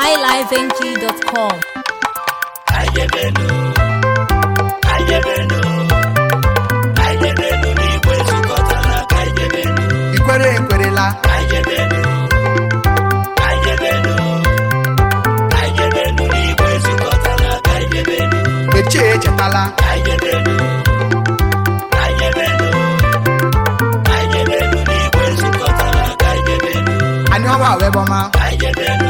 highlifeng.com. Ayebenu, ayebenu, ayebenu n'igwe zukọtara ka ayebenu. Ikwere ekwerela. Ayebenu, ayebenu, ayebenu n'igwe zukọtara ka ayebenu. Eche echetala. Ayebenu. Ayebenu, ayebenu ka ayebenu. Ayebenu.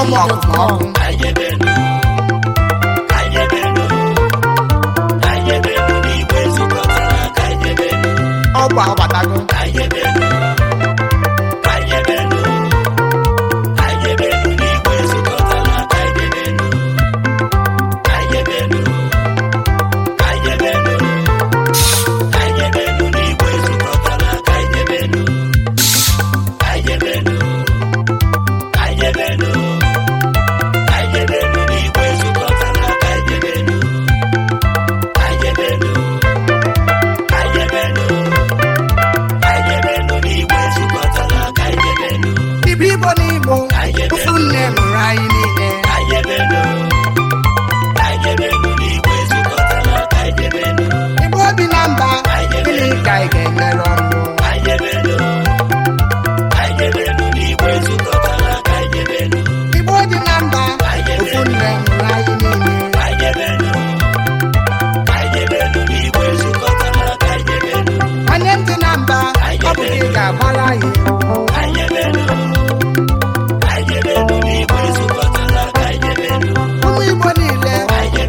ọmụ ọkụkọ ọkụ ọkụ ụfụ nne mụrụ anyị niile